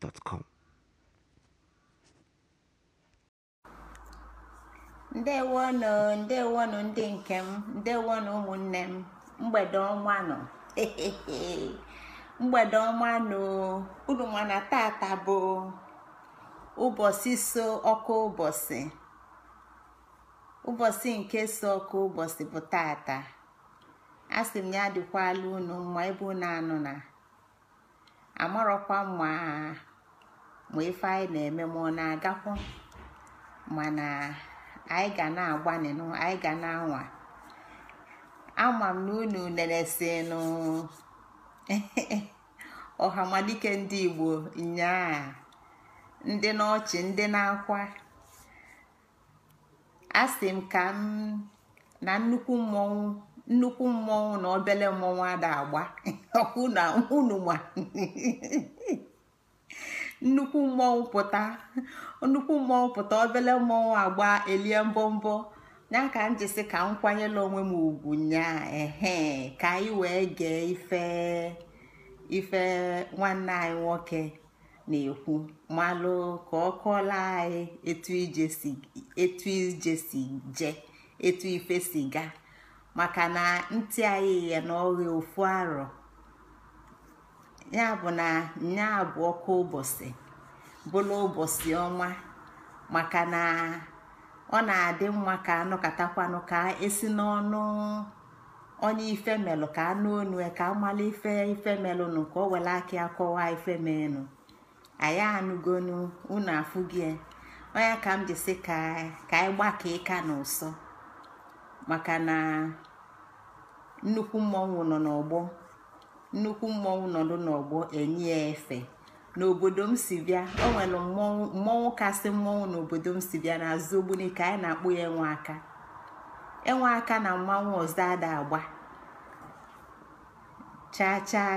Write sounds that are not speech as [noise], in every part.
gmail.com ndewonụ ndewonụ ndị nke m ndewonụ ụmụnne m mgbede ọnwa nọ [laughs] mgbede ọnwa nọ unu ma na tata bụ ụbọchị so ọkụ ụbọchị ụbọchị nke so ọkụ ụbọchị bụ tata asị m ya dịkwala unu mma ebe unu anụ na amarọkwa mma ma ife anyị na-eme ma ọ na-agakwu mana anyị ga na agba n'ịnụ anyị ga na-anwa ama m na unu nenesinụ [laughs] ọhamalike ndị igbo nyaa ndị n'ọchị ndị na-akwa a sị m ka m na nnukwu mmọnwụ nnukwu mmọnwụ na obele mmọnwụ ada agba ọkwụ [laughs] na unu ma [laughs] nnukwu mmọnwụ pụta nnukwu mmọnwụ pụta obele mmọnwụ agba elie mbọmbọ ya ka m jisi ka m kwanyela onwe m ugwu nya ehe ka anyị wee gee ife ife nwanne anyị nwoke na-ekwu malụ ka ọ kọọla anyị etu ije si je etu ife siga maka na ntị anyị ya na ọghị ofu arọ ya bụ na nya bụ ọkụ ụbọchị bụla ụbọchị ọma maka na ọ na-adị mma ka anụkatakwanụ ka esi n'ọnụ onye ifemelụ ka anụ onu ka amala ife ifemelụnụ ka o were aka ya kọwa ifemelụ anyị anụgonu unu afụgie onye ka m jisi ka anyị gbakọ ịka na maka na nnukwu mmọnwụ nọ n'ọgbọ nnukwu mmọnwụ nọdụ n'ọgbọ enye ya efe n'obodo m si bịa o nwere mmọnwụ kasị mmọnwụ n'obodo m si bịa azụ ogbuni ka anyị na-akpụ ya enwe aka enwe aka na mmanwụ ọzọ ada agba chaa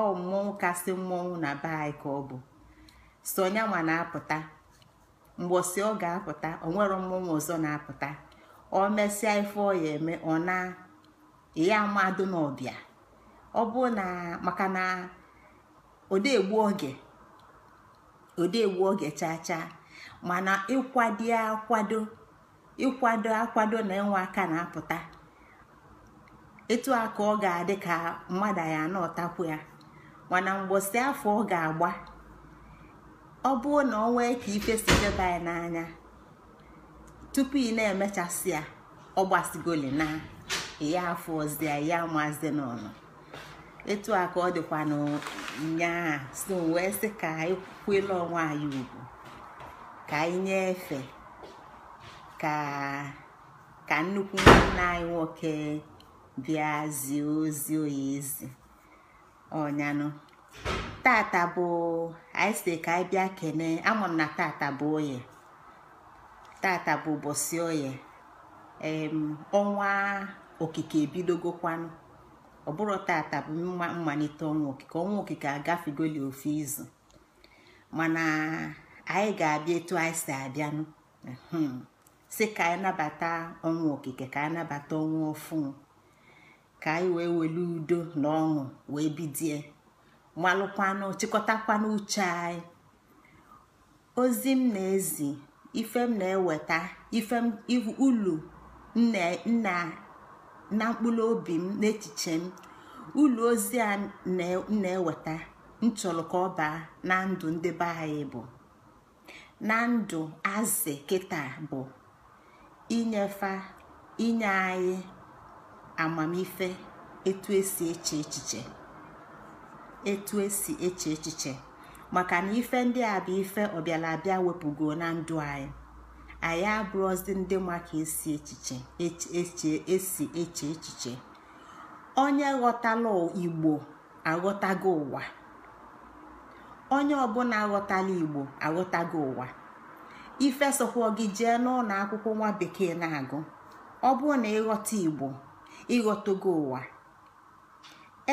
ọ mmọnwụ kasị mmọnwụ na be anyị ka ọ bụ so na-apụta mgbọsị ọ ga-apụta onwere nwere mmọnwụ ọzọ na-apụta ọ mesịa ife ọ ya eme ọ na ya amadụ n'ọbịa ọ bụ na maka na odegbu oge odegbu oge chaa chaa mana ịkwado akwado ịkwado akwado na enwe aka na-apụta etu a ka ọ ga-adị ka mmadụ ya na ya mana mgbọsị afọ ọ ga-agba ọ bụ na ọ nwee ka ife si deba ya n'anya tupu ị na-emechasị ya ọ gbasigoli na ya afọ ya ya maazi n'ọnụ etu a ka ọ dịkwa n'nyaa so wee sị ka anyị kwele onwe anyị ugwu ka anyị nyefee ka ka nnukwu nwanne anyị nwoke bịa zie ozi ezi ọnyanụ tata bụ anyị ka anyị bịa kene ama na tata bụ oye tata bụ ụbọchị oye ọnwa okike ebidogokwanụ ọ bụrụ tata bụ mma mmalite ọnwa okike ọnwa okike agafegoli ofu izu mana anyị ga-abịa etu anyị si abịanụ si ka anyị nabata ọnwa okike ka anyị nabata ọnwa ofu ka anyị wee welu udo na ọṅụ wee bidie malụkwanụ chịkọtakwanụ uche anyị ozi m na-ezi ife m na-eweta ife ulu nna na mkpụrụ obi m n'echiche m ụlọ ozi a na-eweta nchọrọ ka ọ baa na ndụ ndị be anyị bụ na ndụ azị kịta bụ inyefa inye anyị amamife etu esi eche echiche etu esi eche echiche maka na ife ndị a bụ ife ọbịala abịa wepụgo na ndụ anyị anyị abụrụzi ndị ma ka esi echiche esi eche echiche onye ghọtala igbo aghọtago ụwa onye ọbụla aghọtala igbo aghọtago ụwa ife sokwa gị jee n'ụlọ akwụkwọ nwa bekee na-agụ ọ bụrụ na ịghọta igbo ịghọtago ụwa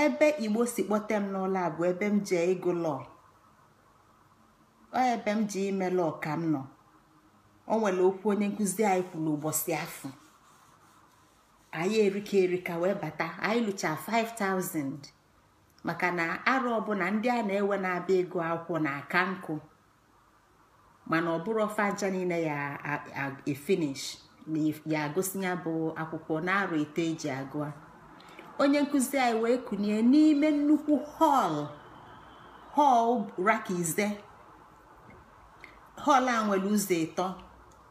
ebe igbo si kpọta m n'ụlọ a bụ ebe m jee ịgụ lọọ ebe m ji ime lọọ ka m nọ o nwere okwu onye nkụzi anyị kwuru ụbọchị afọ anyị erika erika wee bata anyị lụcha 5000 maka na arụ ọbụla ndị a na-ewe na-abịa ego akwụkwọ na aka nkụ mana ọ bụrụ ọfanja niile ya efinish ya agụsi ya bụ akwụkwọ na-arụ ite eji agụa onye nkụzi anyị wee kụnye n'ime nnukwu họl họl raka họl a nwere ụzọ ịtọ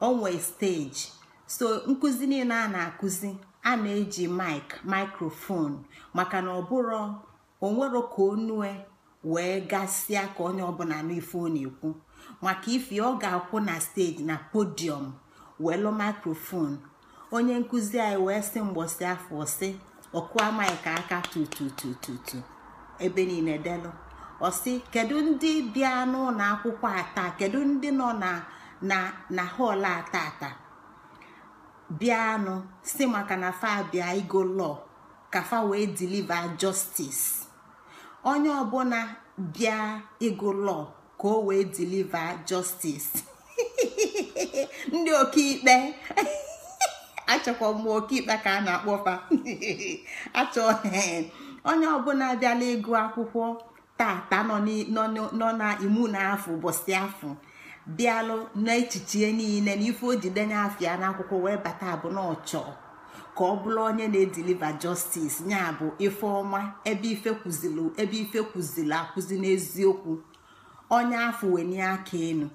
onwe steji so nkụzi niile a na-akụzi a na-eji mik mikrofon maka na ọbụrụ onwero ka onue wee gasịa ka onye ọbụla n'ife ọ na-ekwu maka ife ọ ga-akwụ na steji na podiọm welu mikrofon onye nkụzi anyị wee sị mgbọsi afọ sị ọkụa mik aka tututututu ebe niile delu ọsị kedu ndị bịa n'ụlọ akwụkwọ a taa kedu ndị nọ na na na họl a tata bịanụ si maka na fa bịa igo lọ ka fa wee deliver justice onye ọbụla bịa ịgụ lọ ka o wee deliver justice [laughs] ndị ọkaikpe [laughs] achọkwa m ikpe ka a na-akpọ fa [laughs] achọ onye ọbụla bịala ịgụ akwụkwọ tata nọ nọ na imu na afọ ụbọchị afọ bịalụ n'echiche niile na ife o ji denye afịa n'akwụkwọ wee bata abụ na ọchọ ka ọ bụrụ onye na-ediliva justice nya bụ ife ọma ebe ife kwuzili ebe ife kwuzili akwụzi n'eziokwu onye afọ wenye aka enu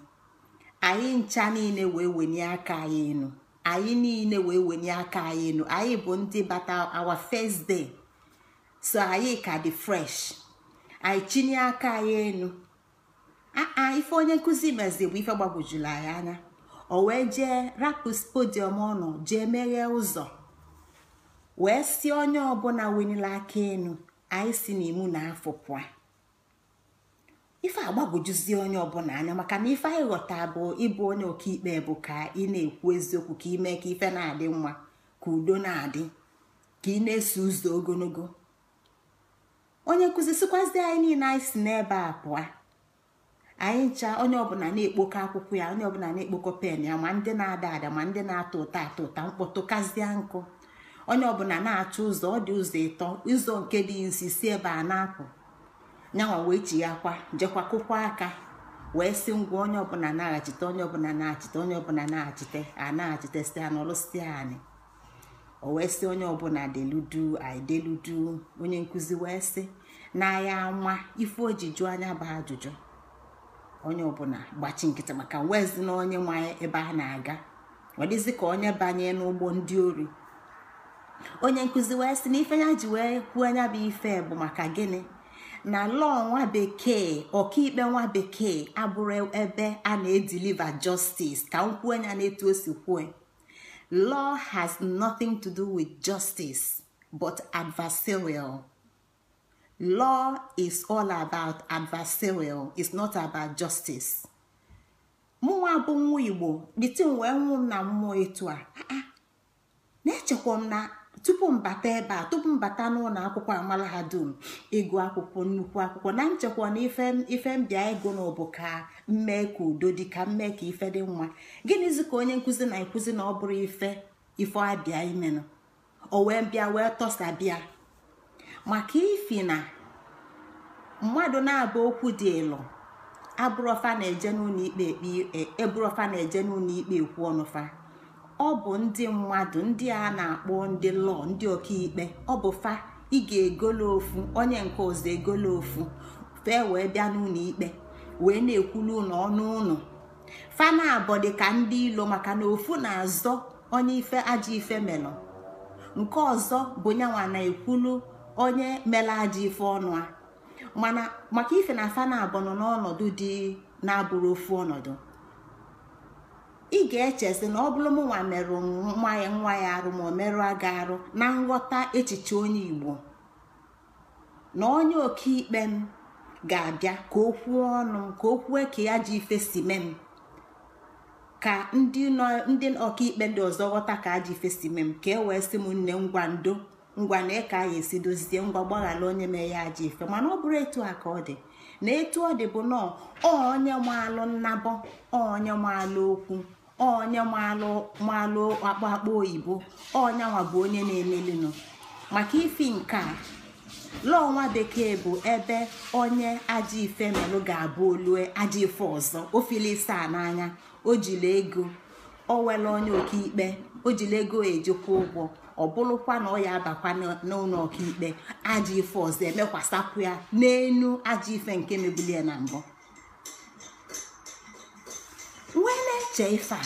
anyị ncha niile wee wenye aka anyị enu anyị niile wee wenye aka anyị enu anyị bụ ndị bata awa fesde, so anyị ka dị fresh anyị chinye aka anyị enu aa ife onye nkụzi mezi bụ ife gbagwojuru anyị anya o wee jee rapu podium ọnụ jee meghee ụzọ wee si onye ọbụla wenila aka enu anyị si n'imu na afọ pụa ife agbagwojuzi onye ọbụla anya maka na ife anyị ghọta bụ ịbụ onye ọkaikpe bụ ka ị na-ekwu eziokwu ka ime ka ife na-adị nwa ka udo na-adị ka ị na-eso ụzọ ogologo onye nkụzi sikwazi anyị niile anyị si n'ebe a pụa anyị ncha onye ọbụla na-ekpokọ akwụkwọ ya onye ọbụla na ekpoko pen ya ma ndị na-ada ada ma ndị na-atọ ụtọ atọ ụta mkpọtụkazie nkụ onye ọbụla na-achọ ụzọ ọ dị ụzọ ịtọ ụzọ nke dị nsi si ebe a na-apụ nyanwa wee chi ya jekwa kụkwa aka wee si ngwa onye ọbụla na-achite onye ọbụla na-achite onye ọbụla na-achite a na-achite si a n'ọlụsi anyị o wee sị onye ọbụla deludu aideludu onye nkụzi wee si na ya ama ife ojiju anya bụ ajụjụ onye ọbụla gbachi nkịtị maka wezi na onye nwe ebe a na-aga ọ ka onye banye n'ụgbọ ndị ori onye nkụzi wee sị na ife ya ji wee kwuo anya bụ ife bụ maka gịnị na lọọ nwa bekee ọkaikpe nwa bekee abụrụ ebe a na-edeliver justice ka m kwuo anya na-etu osi si kwue law has nothing to do with justice but adversarial. law is all about adversarial is not about justice mụnwa bụ nwa igbo m wee nwụ m na mmụọ etu a ah, ah. na-echekwa m na tupu mbata ebe a tupu mbata n'ụlọ akwụkwọ amala ha dum ịgụ akwụkwọ nnukwu akwụkwọ na nchekwa na ife mbịa ego na ọbụ ka mmee ka udo dị ka mmee ka ife dị mma gịnịzi ka onye nkụzi na-ekwuzi na ọ bụrụ ife ife abịa imenụ o wee bịa wee tọsa bịa maka ifi na mmadụ na aba okwu dị ịlụ abụrọfa na-eje n'ụlọ ikpe ekpe e, e, na-eje n'ụlọ ikpe ekwu ọnụfa ọ bụ ndị mmadụ ndị a na-akpọ ndị lọọ ndị ọkaikpe ọ bụ fa ị ga-egolo ofu onye nke ọzọ egolo ofu fee wee bịa n'ụlọ ikpe wee na-ekwulu ụlọ ọnụ ụlọ fa na-abọ dị ka ndị ilo maka na ofu na-azọ onye ife ajọ ife melọ nke ọzọ bụ nyanwa na-ekwulu onye mela aja ife ọnụ a mana maka ife na afa na abụ nọ n'ọnọdụ dị na-abụrụ ofu ọnọdụ ị ga-echesi na ọ bụrụ mụnwa merụ nwa ya nwa ya arụ ma ọ merụ aga arụ na nghọta echiche onye Igbo na onye ikpe m ga-abịa ka o kwuo ọnụ m ka o kwue ka ya ji ife si mee m ka ndị ọkaikpe ndị ọzọ ghọta ka aji ife si mee m ka e wee sị m nne ngwa ndo ngwa na eke anyị esi dozie ngwa gbaghara onye mee ya aja ife mana ọ bụrụ etu a ka ọ dị na etu ọ dị bụ nọọ onye maalụ nnabọ onye maalụ okwu onye maalụ akpa akpa oyibo onye nwa bụ onye na-emelinụ maka ifi nke a lọnwa bekee bụ ebe onye aja ife melụ ga-abụ olue aja ife ọzọ ofili n'anya o ego o onye ọkaikpe o jili ego ejikwa ụgwọ ọ bụrụkwa na ọ ya abakwa n'ụlọ ọkaikpe ajọ ife ọzọ emekwasapụ ya n'enu ajọ ife nke mebulie na mbụ wee na-eche ife a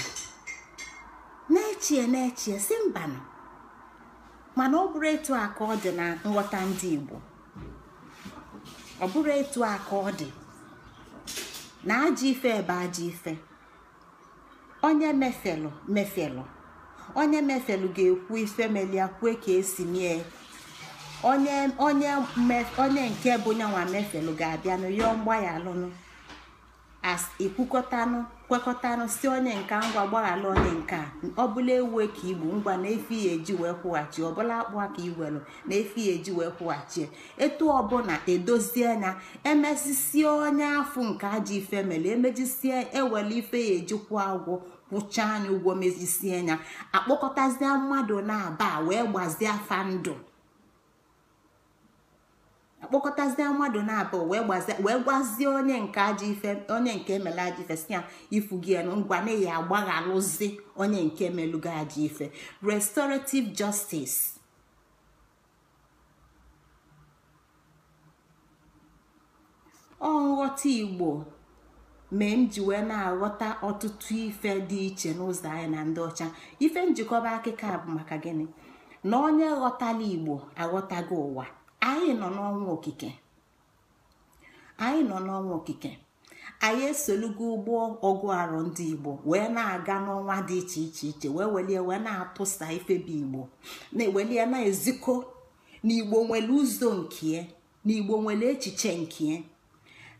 na-echie na-echie si mbanụ mana ọ bụrụ etu a ọ dị na nghọta ndị Igbo ọ bụrụ etu a ka ọ dị na ajọ ife ebe ajọ ife onye mefelụ mefelụ onye mefelu ga-ekwu ifemelia kwue ka esi mie onye nke bụ nyanwa mefelu ga-abịanụ yọọ mgbaghalụnụ as kwekọtanụ si onye nka ngwa gbaghalụ onye nka ọbụla ewe ka igbo ngwa na efi ya eji wee kwụghachi ọbụla akpụ aka iwelu na efi ya eji wee kwụghachi etu ọbụla edozie na emesisie onye afụ nke aji ife mere emejisie ewele ife ya ejikwa agwọ kwụcha anya ụgwọ mezisie anya akpọkọtazie mmadụ na-aba wee gbazie ndụ akpọkọtazie mmadụ na-aba wee gbazie wee gwazie onye nke ajọ ife onye nke emela ajọ ife si ya ifugi enu ngwa na ya agbaghalụzi onye nke emelugo ajọ ife restorative justice ọ nghọta igbo mee m ji wee na-aghọta ọtụtụ ife dị iche n'ụzọ anyị na ndị ọcha ife njikọba akụkọ bụ maka gịnị na onye ghọtala igbo aghọtago ụwa anyị nọ n'ọnwa okike anyị nọ n'ọnwa okike anyị esolugo ụgbọ ọgụ arụ ndị igbo wee na-aga n'ọnwa dị iche iche iche wee welie wee na-atụsa bụ igbo na-ewelie na-ezikọ na igbo nwere ụzọ nke na igbo nwere echiche nke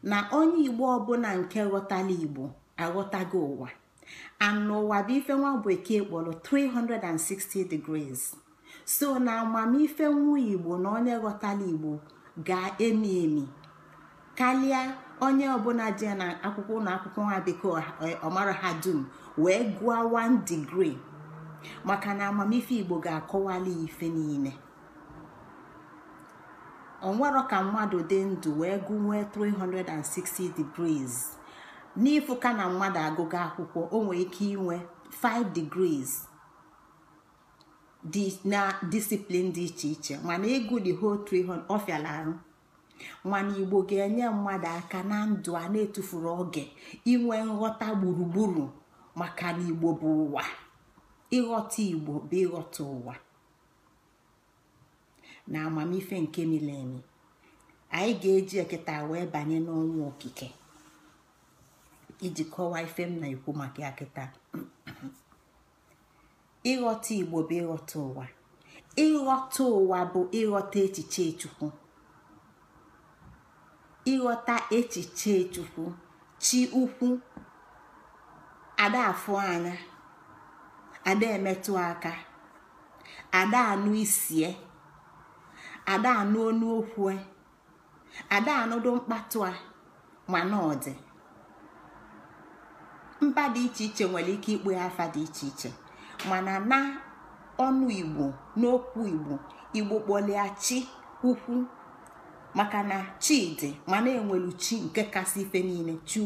na onye igbo ọbụla nke ghọtala igbo aghọtago ụwa anụwa bụ ife nwa bekee kpọrọ 360 degrees so na amamife nwa igbo na onye ghọtala igbo ga-emi emi karịa onye ọbụla dị na akwụkwọ ụlọ akwụkwọ nwa bekee ọmara ha dum wee gụọ 1 degree maka na amamife igbo ga-akọwali ife niile onwero ka mmadụ dị ndụ wee gụnwee 360 degrees n'ịfụka na mmadụ agụga akwụkwọ o nwere ike inwe 5 degrees dị na discipline dị iche iche mana ịgụ the whole 300 ọfịala mana igbo ga-enye mmadụ aka na ndụ a na-etufuru oge inwe nghọta gburugburu maka na igbo bụ ụwa ịghọta igbo bụ ịghọta ụwa na amamife nke milemi anyị ga-eji ekịta wee banye n'ọnwa okike iji kọwaa ife m na-ekwu maka ya ịghọta igbo bụ ịghọta ụwa ịghọta ụwa bụ ịghọta echiche chukwu ịghọta echiche chukwu chi ukwu ada anya ada emetụ aka ada anụ isie ada anụ onu okwu e. ada anụdo mkpatụ a mana ọ dị mba dị iche iche nwere ike ikpe afa dị iche iche mana na ọnụ igbo n'okwu igbo igbo kpọlịa chi ukwu maka na chi dị mana enwelu chi nke kasị ife niile chi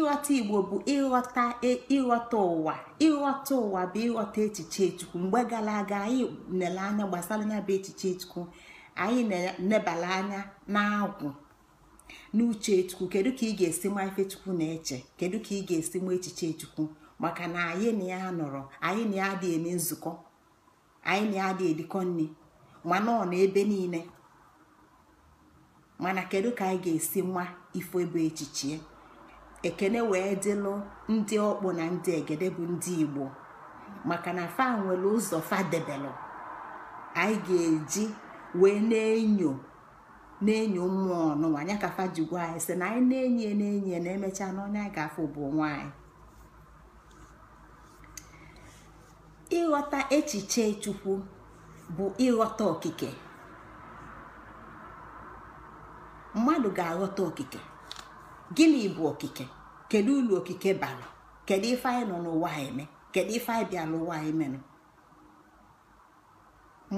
ịghọta igbo bụ ịghọta e, ịghọta ụwa ịghọta ụwa bụ ịghọta echiche chukwu mgbe gara aga anyị nele anya gbasara ya bụ echiche chukwu anyị na anya na-agwụ n'uche chukwu kedu ka ị ga-esi ma ife chukwu na-eche kedu ka ị ga-esi ma echiche chukwu maka na anyị na ya nọrọ anyị na ya adị eme nzukọ anyị na ya adị edikọ nri mana ọ na ebe niile mana kedu ka anyị ga-esi nwa ife ebe echiche ekene wee dịlụ ndị ọkpụ na ndị egede bụ ndị igbo maka na fa nwere ụzọ fadebelụ anyị ga-eji wee na-enyo na-enyo mmụọ ọnụnwa ya ka fa ji anyị sị na anyị na-enye na-enye na emechaa na onye anyị ga-afụ bụ nwanyị ịghọta echiche chukwu bụ ịghọta okike mmadụ ga-aghọta okike gịnị bụ okike kedu ulu okike bara kedu ife anyị nọ n'ụwa eme kedu ife anyị bịa n'ụwa emenụ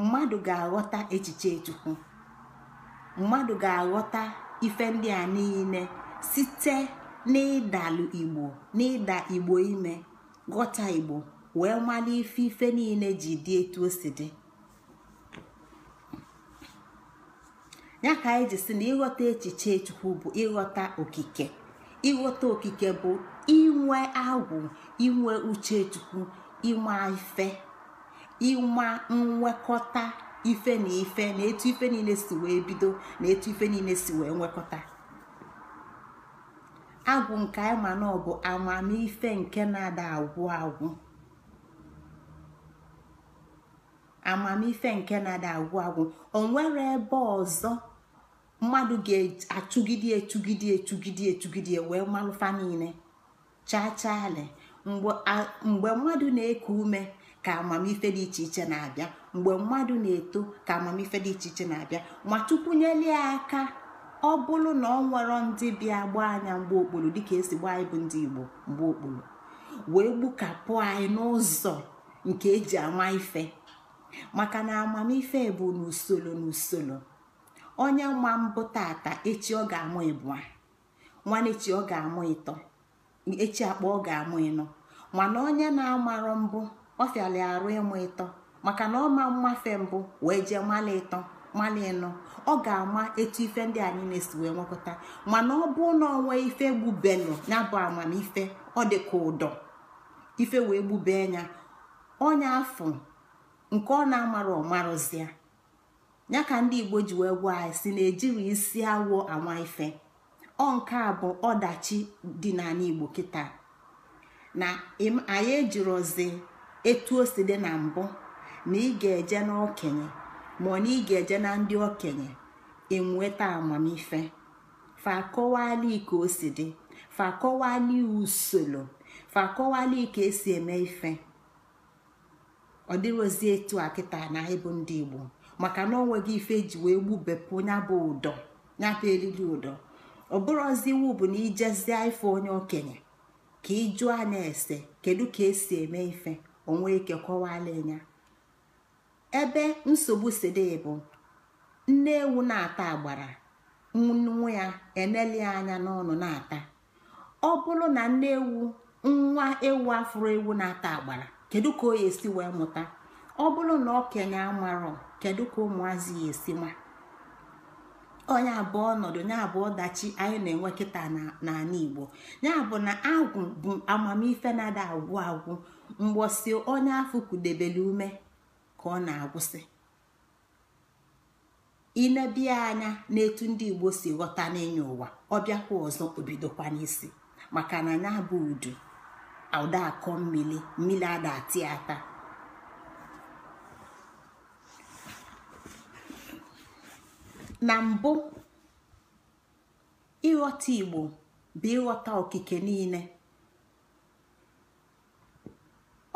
mmadụ ga-aghọta echiche chukwu mmadụ ga-aghọta ife ndị a niile site n'ịdalụ igbo n'ịda igbo ime ghọta igbo wee mara ife ife niile ji dị etu o si dị ya ka anyị ji si na ịghọta echiche chukwu bụ ịghọta okike ịghọta okike bụ inwe agwụ inwe uche chukwu ịma ife ịma nwekọta ife na ife na etu ife niile si wee bido na etu ife niile si wee nwekọta agwụ nke anyị ma na ọ bụ amamife nke na-ada agwụ agwụ amamife nke na-ada agwụ agwụ o nwere ebe ọzọ mmadụ ga-atụgide etugide etugide etugide wee malụfa niile chachaalị mgbe mmadụ na-eku ume ka amamife dị iche iche na-abịa mgbe mmadụ na-eto ka amamife dị iche iche na-abịa ma tukwunyelie aka ọ bụrụ na ọ nwere ndị bịa gbaa anya mgbe okporo dịka esi gbaa anyị bụ ndị igbo mgbe okporo wee gbukapụ anyị n'ụzọ nke eji ama ife maka na amamife bụ n'usoro n'usoro onye ma mbụ tata echi ọ ga-amụ ịbụa na-echi ọ ga-amụ ịtọ echi akpa ọ ga-amụ ịnọ mana onye na amarụ mbụ ọ fịala arụ ịmụ ịtọ maka na ọ ma mmafe mbụ wee jee mmalị ịtọ mmalị ịnọ ọ ga-ama etu ife ndị anyị na-esi wee nwekọta mana ọ bụ na onwe ife gbubelụ ya bụ amamife ọ dị ụdọ ife wee gbube ya onye afọ nke ọ na-amara amarụ ọmarụzịa ya ka ndị igbo ji wee gwa anyị si na ejiri isi awụ anwa ife ọ nke a bụ ọdachi dị n'ala igbo kịta na anyị ejirozi etu o si dị na mbụ na ị ga-eje n'okenye ma ọ na ị ga-eje na ndị okenye enweta amamife fakọwali ike o si dị usoro ka esi eme ife ọ dịrozi etu a kịta na anyị ndị igbo maka na onweghị ife ji wee gbubepụ nya bụ ụdọ nyabụ eriri ụdọ ọ bụrụzi iwu bụ na ijezie ife onye okenye ka ịjụọ anya ese kedu ka esi eme ife onwe ike kọwala ya ebe nsogbu sidi bụ nne ewu na-ata agbara nwa ya eneli anya n'ọnụ na-ata ọ bụrụ na nne ewu nwa ewu afụrụ ewu na-ata agbara kedu ka o ya esi wee mụta ọ bụrụ na okenye amarọ kedu ka ụmụazị ya esi ma onye abụọ ọnọdụ ya abụ ọdachi anyị na-enwe kịta n'ala igbo ya bụ na agwụ bụ amamife na-ada agwụ agwụ mgbọsi onye afọ kudebele ume ka ọ na-agwụsị inebia anya n'etu ndị igbo si ghọta n'ịnya ụwa ọbịakwa ọzọ obidokwa n'isi maka na ya bụ udu ụda akọ mmiri mmiri ada ati ata na mbụ ịghọta igbo bụ ịghọta okike niile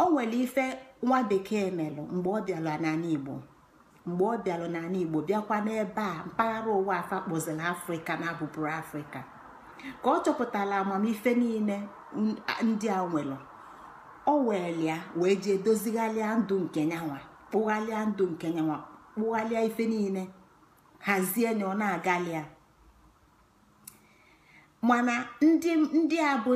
o nwere ife nwa bekee melụ mgbe ọ bịara n'ala igbo mgbe ọ bịara n'ala igbo bịakwa n'ebe a mpaghara ụwa afa kpọziri afrịka na abụbụrụ afrịka ka ọ chọpụtara amamife niile ndị a nwere o welia wee jee dozigharịa ndụ nke nyanwa kpụgharịa ndụ nke nyanwa kpụgharịa ife niile hazie na ọ na aga ya mana ndị a bụ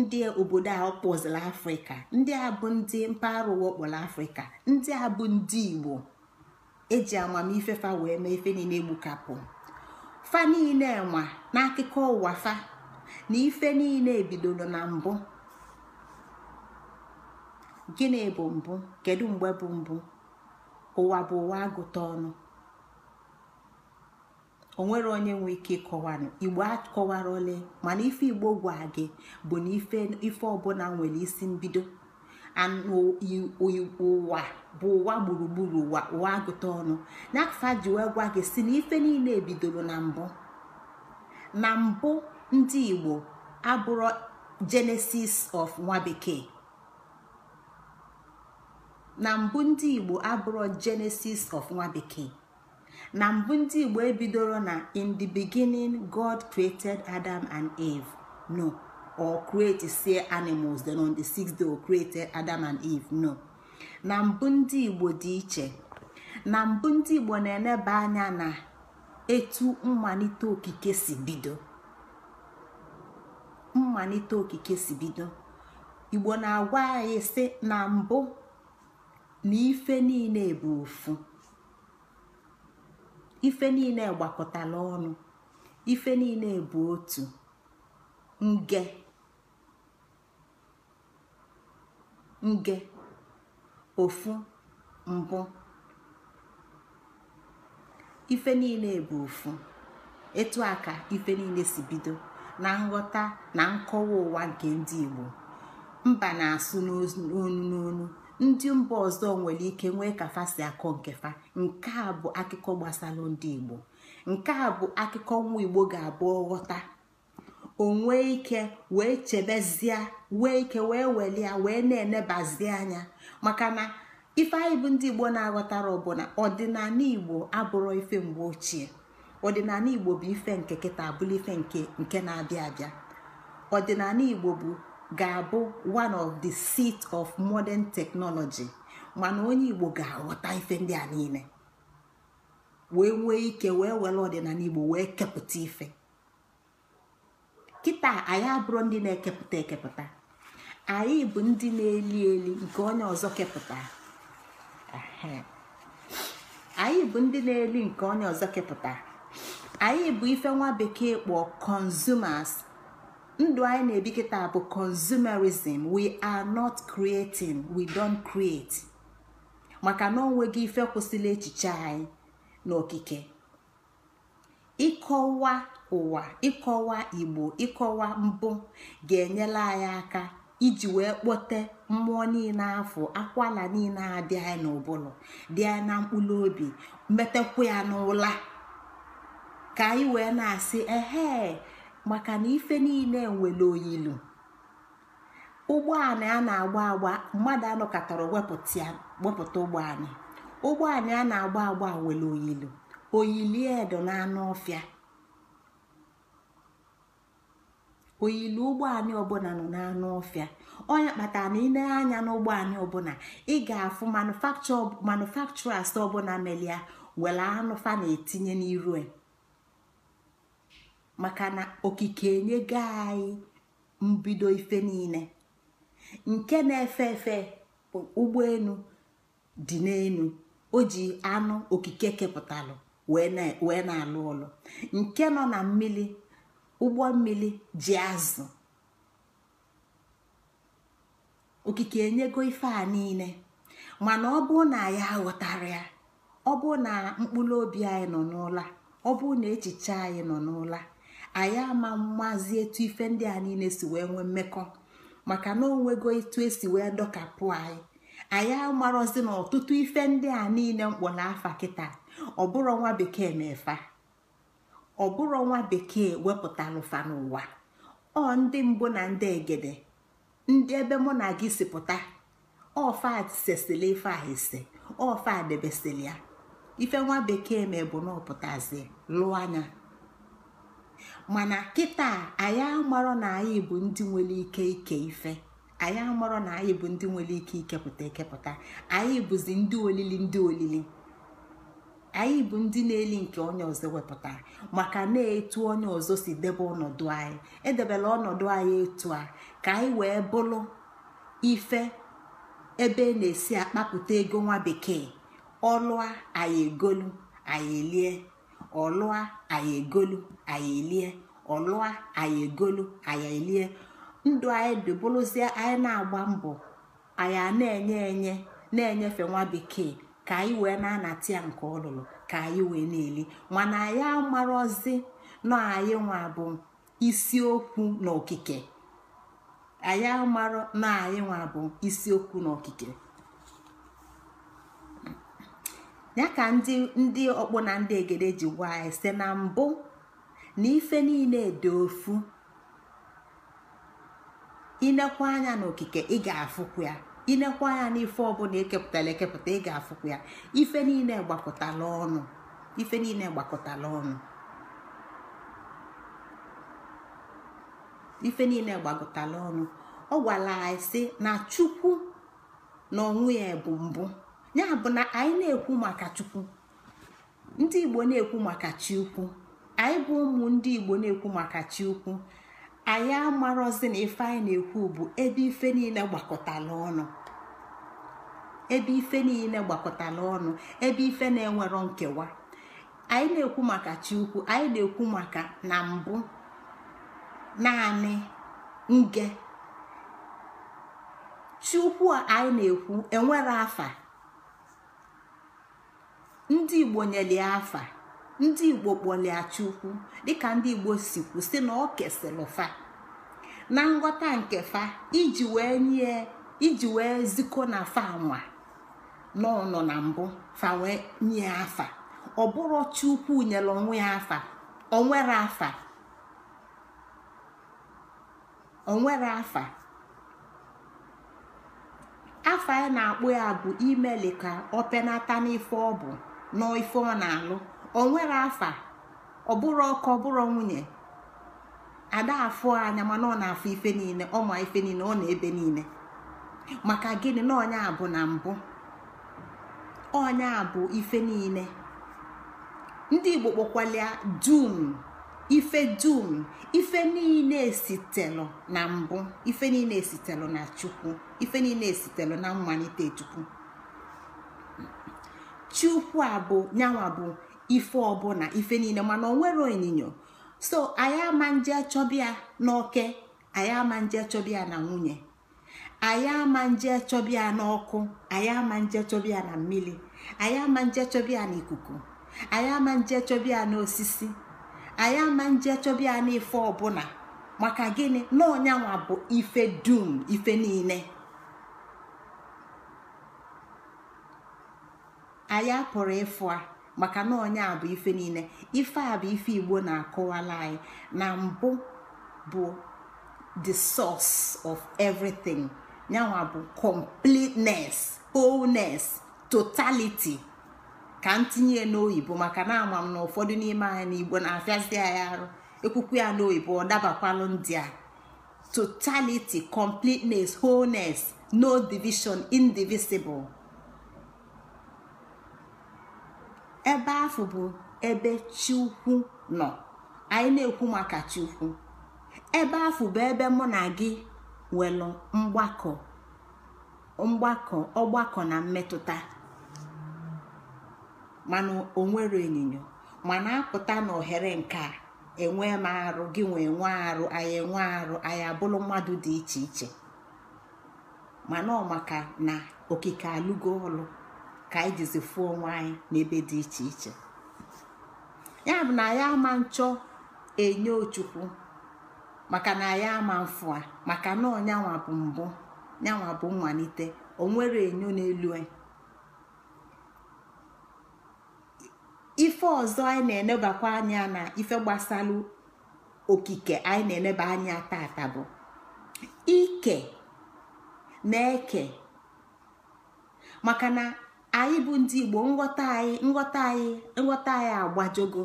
ndị obodo a ọkpọzila afrịka ndị a bụ ndị mpaghara ụwa ọkpọrọ afrịka ndị a bụ ndị igbo eji amamife fa wee mee ife niile egbukapụ fa niile nwa n'akụkọ ụwa fa na ife niile bidoro na mbụ gịnị bụ mbụ kedu mgbe bụ mbụ ụwa bụ ụwa agụta ọnụ onwere onye nwe ike ịkọwanụ igbo akọwara ole mana ife igbo gwa gị bụ na ife ọbụla nwere isi mbido ụwa bụ ụwa gburugburu ụwa ụwa agụta ọnụ n'afa ji wee gwa gị si na ife niile bidoro na mbụ ndị igbo abụrọ genesis of nwa genesis of nwa bekee na mbụ ndị igbo ebidoro na in the beginning god created adam and eve no or create see animals then on the sixth day o oh, created adam and eve no na mbụ ndị igbo dị iche na mbụ ndị igbo na-eneba anya na etu mmalite okike si bido mmalite okike si bido igbo na-agwa anyị si na mbụ na ife niile bụ ofu ife niile gbakọtala ọnụ ife niile bụ otu nge nge ofu mbụ ife niile bụ ofu etu a ka ife niile si bido na nghọta na nkọwa ụwa nke ndị Igbo mba na-asụ n'onu n'onu ndị mba ọzọ nwere ike nwee ka si akọ nke fa nke a bụ akụkọ gbasara ndị igbo nke a bụ akụkọ nwa igbo ga-abụ ghọta onwe ike wee chebezie wee ike wee welie wee na-enebazi anya maka na ife anyị bụ ndị igbo na-aghọtara ọbụla ọdịnala igbo abụrụ ife mgbe ochie ọdịnala igbo bụ ife nke kịta abụla ife nke nke na-abịa abịa ọdịnala igbo bụ ga-abụ one of the seat of modern technology mana onye igbo ga-aghọta ife ndị a niile wee nwee ike wee were ọdịnala igbo wee kepụta ife kịta anyị abụrụ ndị na-ekepụta ekepụta anyị bụ ndị na-eli eli nke onye ọzọ kepụta anyị bụ ndị na-eli nke onye ọzọ kepụta anyị bụ ife nwa bekee kpọọ consumers ndụ anyị na-ebi kịta bụ consumerism we are not creating we don't create maka na onweghị ife kwụsịla echiche anyị n'okike ịkọwa ụwa ịkọwa igbo ịkọwa mbụ ga-enyere anyị aka iji wee kpote mmụọ niile afọ akwala niile adị anyị n'ụbụrụ dị anyị na mkpụrụ obi metekwa ya n'ụla ka anyị wee na-asị ehe maka na ife niile nwere oyilu ụgbọala a na-agba agba mmadụ anọkọtara wepụta ụgbọala ụgbọala a na-agba agba nwere oyilu oyili edo na anụ ọfịa oyili ụgbọala ọbụla nọ n'anụ ọfịa onye kpatara na ile anya n'ụgbọala ọbụla ị ga-afụ manufaktura ọbụla melia were anụ fa na-etinye n'irue maka na okike enyego anyị mbido ife niile nke na-efe efe ụgbọelu dị n'elu o ji anụ okike kepụtalụ wee na-alụ ụlọ nke nọ na mmiri ụgbọ mmiri ji azụ okike enyego ife a niile mana ọ bụ na ya ghọtara ya ọ bụ na mkpụrụ obi anyị nọ n'ụla ọ bụ na echiche anyị nọ n'ụla anyị ama mmazi etu ife ndị a niile si wee nwee mmekọ maka na onwego etu esi wee dọkapụ anyị anyị amarozi na ọtụtụ ife ndị a niile mkpọ na afa kịta ọbụrụ nwa bekee na-efa ọbụrụ nwa bekee wepụtara ụfa n'ụwa ọ ndị mbụ na ndị egede ndị ebe mụ na gị si pụta ọfa sesili ife a ese ọfa debesili ya ife nwa bekee ma bụ na ọpụtazi lụọ anya mana kịta anyị amarọ na anyị bụ ndị nwere ike ike ife anyị amarọ na anyị bụ ndị nwere ike ikepụta ekepụta anyị bụzi ndị olili ndị olili anyị bụ ndị na-eli nke onye ọzọ wepụtara maka na-etu onye ọzọ si debe ọnọdụ anyị edebela ọnọdụ anyị etu a ka anyị wee bụrụ ife ebe e na-esi akpapụta ego nwa bekee ọlụa anyị egolu anyị elie ọlụa anyị egolu anyị elie ọlụa anyị egolu anyị ndụ anyị anyị na-agba mbọ anyị na-enye enye na-enyefe nwa bekee ka anyị wee na-anata ya nke ọlụlụ ka anyị wee na-eli mana anyị amarọzi na anyị nwa bụ na anyị nwa bụ isiokwu n'okike ya ka ndị ndị ọkpụ na ndị egede ji gwa anyị si na mbụ na ife niile dị ofu inekwa anya n'okike ị ga-afụkwu ya inekwa anya n'ife ọbụla ekepụtara ekepụta ị ga-afụkwu ya ife niile gbakọtala ọnụ ife niile gbakọtala ọnụ ife niile ọnụ ọ gwara anyị si na chukwu na onwe ya bụ mbụ ya bụ na anyị na-ekwu maka chukwu ndị igbo na-ekwu maka chi anyị bụ ụmụ ndị igbo na-ekwu maka chi anyị amarọzi na ife anyị na-ekwu bụ ebe ife niile gbakọtala ọnụ ebe ife niile gbakọtara ọnụ ebe ife na-enwero nkewa anyị na-ekwu maka chi anyị na-ekwu maka na mbụ naanị nge chi a anyị na-ekwu enwere afa ndị igbo nyelie afa ndị igbo kpọlie chukwu dịka ndị igbo si kwụsị na ọ kesịrị fa na nghọta nke fa iji wee nye iji wee zikọ na fa nwa n'ọnọ na mbụ fa wee nye afa ọ bụrụ chukwu nyere onwe ya afa onwere afa onwere afa afa a na-akpụ ya bụ imeli ka ọ penata n'ife ọ bụ nọ ife ọ na-alụ o nwere afa ọ bụrụ ọkọ ọ bụrụ nwunye ada afụ anya mana ọ na-afụ ife niile ọ ma ife niile ọ na-ebe niile maka gịnị na ọnya bụ na mbụ ọnya bụ ife niile ndị igbo kpọkwalịa dum ife dum ife niile esitelụ na mbụ ife niile esitelụ na chukwu ife niile esitelụ na mmalite chukwu chukwu abụ nyanwa bụ ife ọbụla ife niile mana onwere onyinyo so anyị ama nje chọbịa n'oke anyị ama nje chọbịa na nwunye anyị ama nje chọbịa n'ọkụ anyị ama nje chọbịa na mmiri anyị ama nje chọbịa na ikuku anyị ama nje chọbịa na osisi anyị ama nje chọbịa na ife ọbụla maka gịnị na ọnyanwa bụ ife dum ife niile anyị pụrụ ịfụ a maka na onye a bụ ife niile ife a bụ ife igbo na akụwala anyị na mbụ bụ the source of everything yanwa bụ completeness wholeness totality ka m tinye n'oyibo maka na ama m na ụfọdụ n'ime anyị igbo na-afịazi anyị arụ ekwukwu ya n'oyibo ọ dabakwalụ ndị a totality completeness wholeness no division indivisible ebe ahụ bụ ebe chi nọ anyị na-ekwu maka chi ebe ahụ bụ ebe mụ na gị nwere mgbakọ mgbakọ ọgbakọ na mmetụta mana onwere onyinyo mana apụta na ohere nke a enwe m arụ gị nwee e nwe arụ anyị enwe arụ anyị abụrụ mmadụ dị iche iche mana ọ maka na okike alụgo ọlụ ka anyị jizi fụọ onwe anyị n'ebe dị iche iche ya bụ na ya ama nchọ enye ochukwu maka na ya ama mfụ a maka na ọnyanwa bụ mbụ nyanwa bụ mmalite nwere enyo n'elu ife ọzọ anyị na-enebakwa anya na ife gbasalụ okike anyị na-eneba anya tata bụ ike na eke maka na anyị bụ ndị igbo nghọta anyị nghọta anyị nghọta anyị agbajogo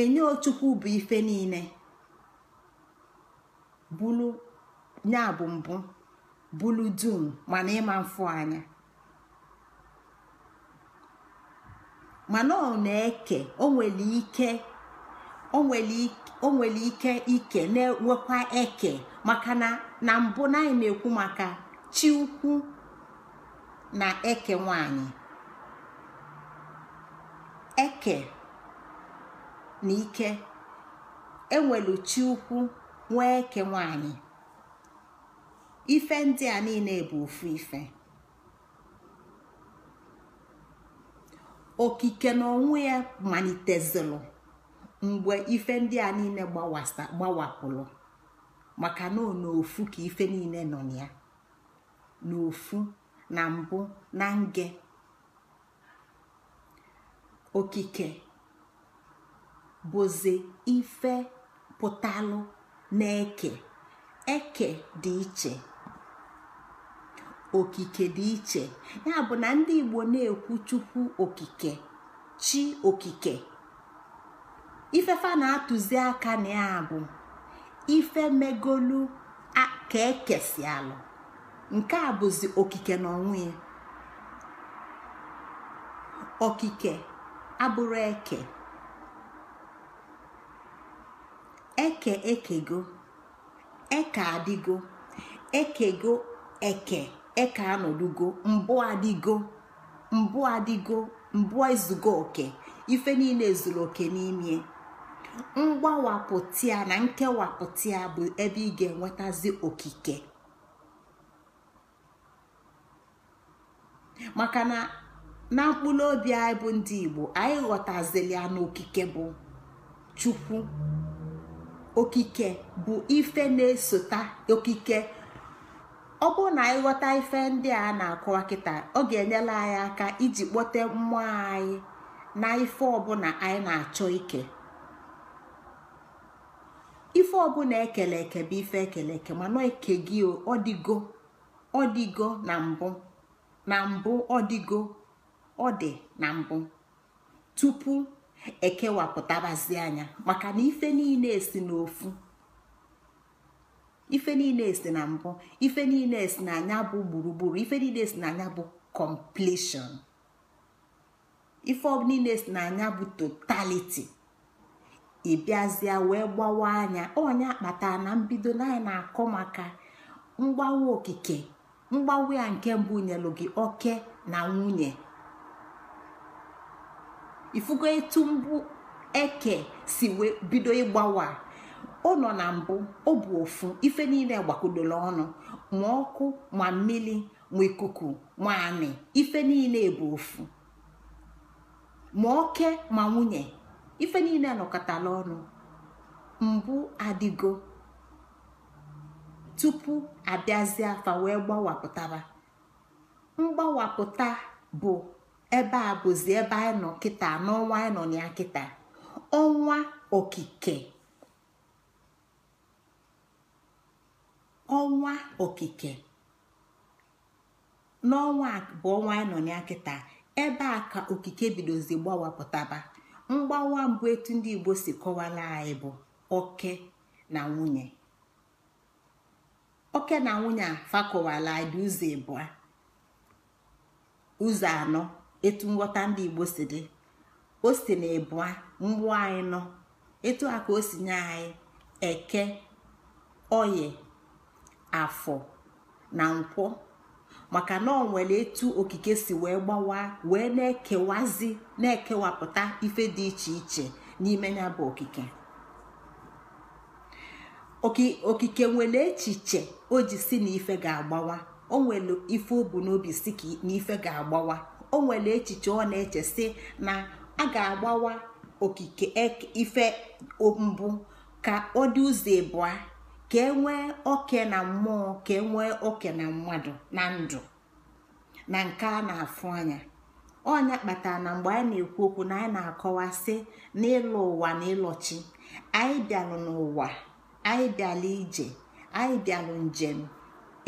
enye ochukwu bụ ife niile bulu ya bụ mbụ bulu dum mana ịma mfụ anya mana ọ na-eke o ike ike na-enwekwa eke maka na mbụ na anyị na-ekwu maka chi ukwu na eke nwanyị eke na ike ewelu chi ukwu nwee eke nwanyị ife ndị a niile bụ ofu ife okike na ya malitezilu mgbe ife ndị a niile gbawapụlụ maka na ofu ka ife niile nọ na ya n'ofu na mbụ na nge okike bụzi ife pụtalụ na-eke eke dị iche okike dị iche ya bụ na ndị igbo na-ekwu chukwu okike chi okike ifefa na-atụzi aka na ya bụ ife megolu ka e alụ. nke a bụzi okike na onwe ya okike abụrụ eke eke ekego eke adịgo ekego eke eke anọdugo mbụ adịgo mbụ adịgo mbụ ezugo oke ife niile ezuru oke n'ime mgbawapụta na nkewapụta bụ ebe ị ga-enwetazi okike maka na na mkpụrụ obi anyị bụ ndị igbo anyị ghọtazili ya n'okike bụ chukwu okike bụ ife na-esota okike ọ bụrụ na anyị ghọta ife ndị a na akụ kịta ọ ga-enyela anyị aka iji kpọte mmụọ anyị na ife ọbụla anyị na-achọ ike ife ọbụla ekele eke bụ ife ekele eke mana eke gị ọ na mbụ na mbụ ọdịgo ọ dị na mbụ tupu ekewapụtabazi anya maka na ife niile esi n'ofu ife niile e si na mbụ ife niile esi na anya bụ gburugburu ife niile e si na anya bụ completion ife niile esi na anya bụ totality ịbịazịa wee gbawa anya onye akpata na mbido na na-akọ maka mgbawa okike mgbanwe ya nke mbụ nyelụ gị oke na nwunye ifugo etu mbụ eke si bido ịgbawa ọ nọ na mbụ ọ bụ ofu ife niile gbakọdoro ọnụ ma ọkụ ma mmiri ma ikuku ma anị ife niile bụ ofu ma oke ma nwunye ife niile nọkọtara ọnụ mbụ adịgo tupu abịazie afa wee gbawapụtaba mgbawapụta bụ ebe a bụzi ebe anyị nọ kịta n'ọnwa anyị nọ na ya kịta ọnwa okike ọnwa okike n'ọnwa bụ ọnwa anyị nọ na ya kịta ebe a ka okike bidozi gbawapụtaba mgbawa mbụ etu ndị Igbo si kọwara anyị bụ oke na nwunye oke na nwunye a fakọwala dị ụzọ ụzọ anọ etu nghọta ndị igbo si dị o si na ịbụa mgbụ anyị nọ etu aka ka o si nye anyị eke oye afọ na nkwọ maka na ọ nwere etu okike si wee gbawa wee na-ekewazi na-ekewapụta ife dị iche iche n'ime ya bụ okike okike nwere echiche o ji si na ife ga-agbawa o nwere ife o bu n'obi si na ife ga-agbawa o nwere echiche ọ na-eche si na a ga-agbawa okike e, ife mbụ ka ọ dị ụzọ ịbụa ka e nwee oke na mmụọ ka e nwee oke na mmadụ na ndụ na nke a na-afụ anya ọnya kpatara na mgbe anyị na-ekwu okwu na anyị na-akọwa si n'ịlụ ụwa na anyị bịalụ n'ụwa anyị bịala ije anyị bịalụ njem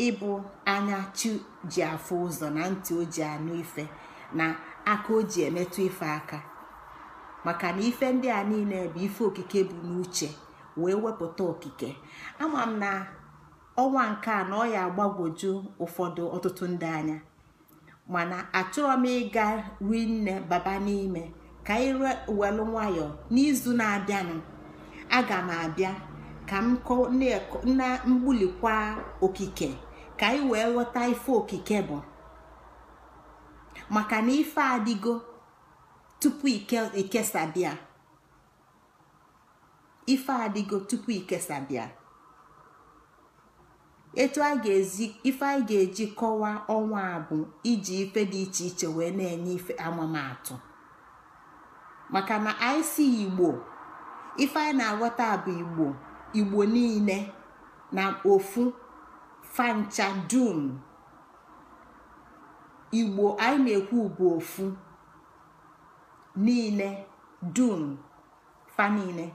ịbụ anya chi ji afọ ụzọ na ntị o ji anụ ife na aka o ji emetụ ife aka maka na ife ndị a niile bụ ife okike bụ n'uche wee wepụta okike ama m na ọnwa nke a na ọ ya agbagwoju ụfọdụ ọtụtụ ndị anya mana achọrọ m ịga rinne baba n'ime ka anyị welu nwayọọ n'izu na-abịanụ aga m abịa ka m na mgbulikwa okike ka anyị wee ghọta ife okike bụ maka na ife adịgo tupu ikesabịa ife adịgo tupu etu a ga ife anyị ga-eji kọwaa ọnwa a bụ iji ife dị iche iche wee na-enye ife maka na anyị si igbo ife anyị na-aghọta bụ igbo igbo niile na ofu fancha dum igbo anyị na-ekwu bụ ofu niile dum fa niile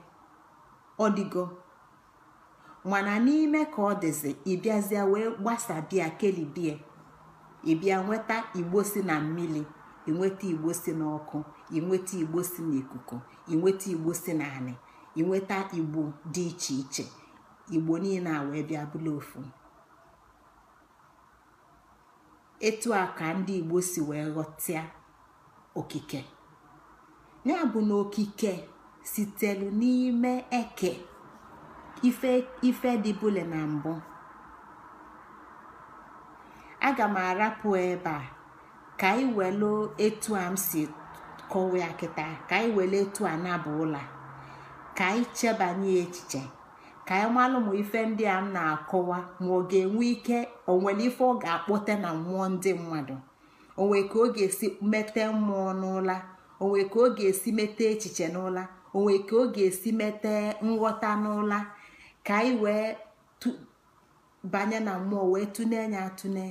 mana n'ime ka ọ dịzi ịbịazịa wee gbasabịa kelibie ịbịa nweta igbo si na mmiri inweta igbo si n'ọkụ inweta igbo si n'ikuku inweta igbo si anị. inweta igbo dị iche iche igbo niile a wee bịa bụla ofu etu a ka ndị igbo si wee ghọtịa okike ya bụ na okike sitelu n'ime eke ife bule na mbụ aga m arapụ ebe a ka anyị welu etu a m si kọwa ya ka anyị welu etu a na ụlọ ụla ka anyị chebanye echiche ka anyị malụ ma ife ndị a m na-akọwa ma ọ ga-enwe ike onwere ife ọ ga-akpọte na mmụọ ndị mmadụ onwe ka ọ ga-esi mete mmụọ n'ụla onwe ka ọ ga-esi mete echiche n'ụla onwe ka ọ ga-esi mete nghọta n'ụla ka anyị wee banye na mmụọ wee tụne ya atụne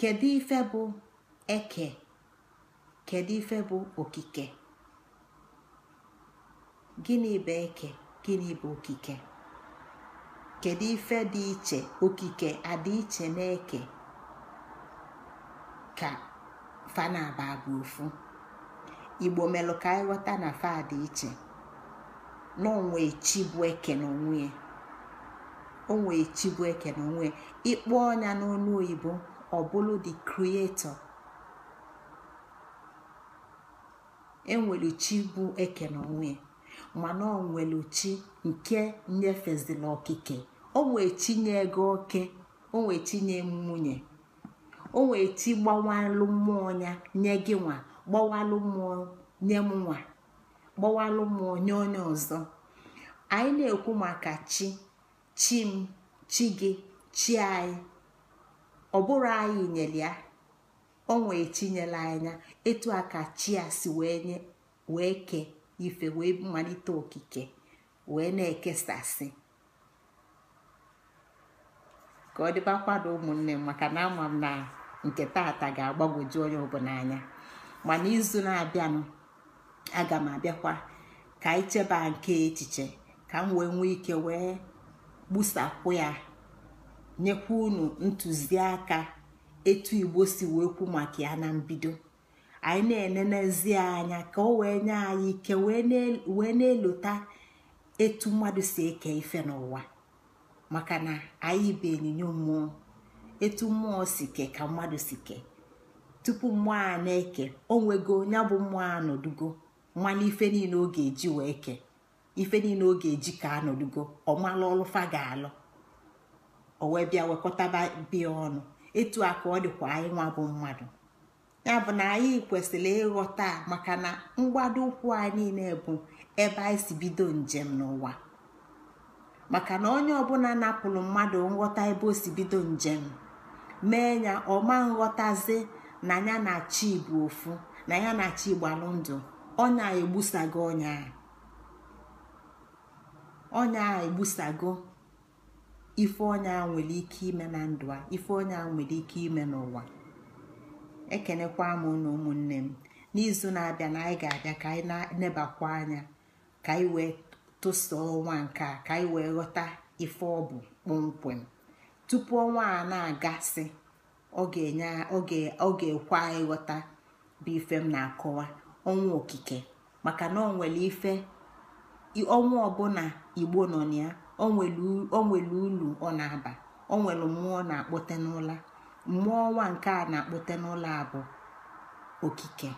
kedu ife bụ eke kedu ife bụ okike gịnị bụ eke gịnị bụ okike kedu ife dị iche okike adị iche na-eke ka fanaba bụ ofu igbo melụ ka anyị ghọta na fa dị iche n'onwe echi bụ eke n'onwe ya onwe chi bụ eke n'onwe ya ịkpọ ọnya n'ọnụ oyibo ọbụlụ dị enwere chi bụ eke na ya mana ọ nwere chi nke nyefezila okike o chi chinye ego oke o chi chinye nwunye o nwee chi gbawalụ mmụọ ya nye gị nwa gbawalụ mmụọ nye m nwa gbawalụ mmụọ nye onye ọzọ anyị na-ekwu maka chi chi m chi gị chi anyị ọ bụrụ anyị nyere ya o nwee anya etu a ka chi a si wee kee ife wee malite okike wee na-ekesasị ka ọ dịbakwado ụmụnne m maka na ama m na nke tata ga-agbagwoju onye ọbụla anya mana izu na-abịanụ aga m abịakwa ka anyị cheba nke echiche ka m wee nwee ike wee gbusapụ ya nyekwa unu ntụziaka etu igbo si wee kwu maka ya na mbido anyị na-enenezi anya ka o wee nye anyị ike wee na-elota etu mmadụ si eke ife n'ụwa maka na anyị bụ onyinyo mmụọ etu mmụọ si ke ka mmadụ si ke tupu mmụọ a na-eke o nwego ya bụ mmụọ anọdugo mmanụ ife niile ọ ga-eji wee ke ife niile ọ ga-eji ka anọdugo ọmala ọlụfa ga-alụ o wee bịa wekọtaba bịa ọnụ etu a ka ọ dịkwa anyị nwa bụ mmadụ ya bụ na anyị kwesịrị ịghọta maka na mgbado ụkwụ anyị niile bụ ebe anyị si bido njem n'ụwa maka na onye ọbụla napụrụ mmadụ nghọta ebe o si bido njem mee ya ọma nghọtazi na ya na chi ofu na ya na chi gbalụndụ ọnya egbusago ọnya ọnya egbusago ife ọnya nwere ike ime na ndụ a ife ọnya nwere ike ime n'ụwa ekenekwa m na ụmụnne m n'izu na-abịa na anyị ga-abịa ka anyị na-nebakwa anya ka anyị wee tụsoo ọnwa nke a ka anyị wee ghọta ife ọ bụ kpọmkwem tupu ọnwa a na-agasị ọ ga-ekwe anyị ghọta bụ ife m na-akọwa ọnwa okike maka na ọ nwere ife ọnwa ọbụla igbo nọ na ya o nwere ulu ọ na-aba o nwere mmụọ na-akpọte n'ụla mmụọ ọnwa nke a na-akpọte n'ụlọ a okike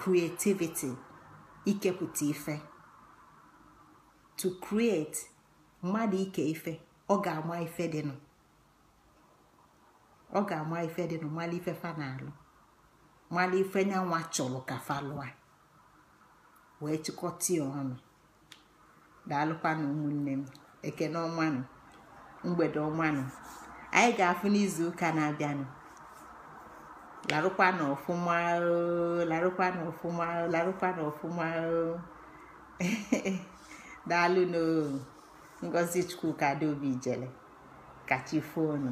creativity ikepụta ife to create mmadụ ike ife ọ ga-ama ife dịnụ ọ ga-ama ife mmalụ ife fa na-alụ mmalụ ife nyanwa chọrọ ka fa wee chịkọta ya ọnụ daalụkwanụ ụmụnne m ekene ọmanụ mgbede ọmanụ anyị ga-afụ n'izu ụka na-abịanụ larụkwa na ọfụma larụkwa na larụkwa na daalụ n'o ngozi chukwu ka adaobi kachi fonu